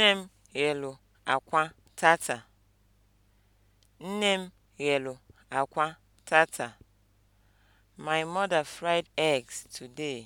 Nne m ghelu akwa tata. Nne m ghelu akwa tata. My mother fried eggs today.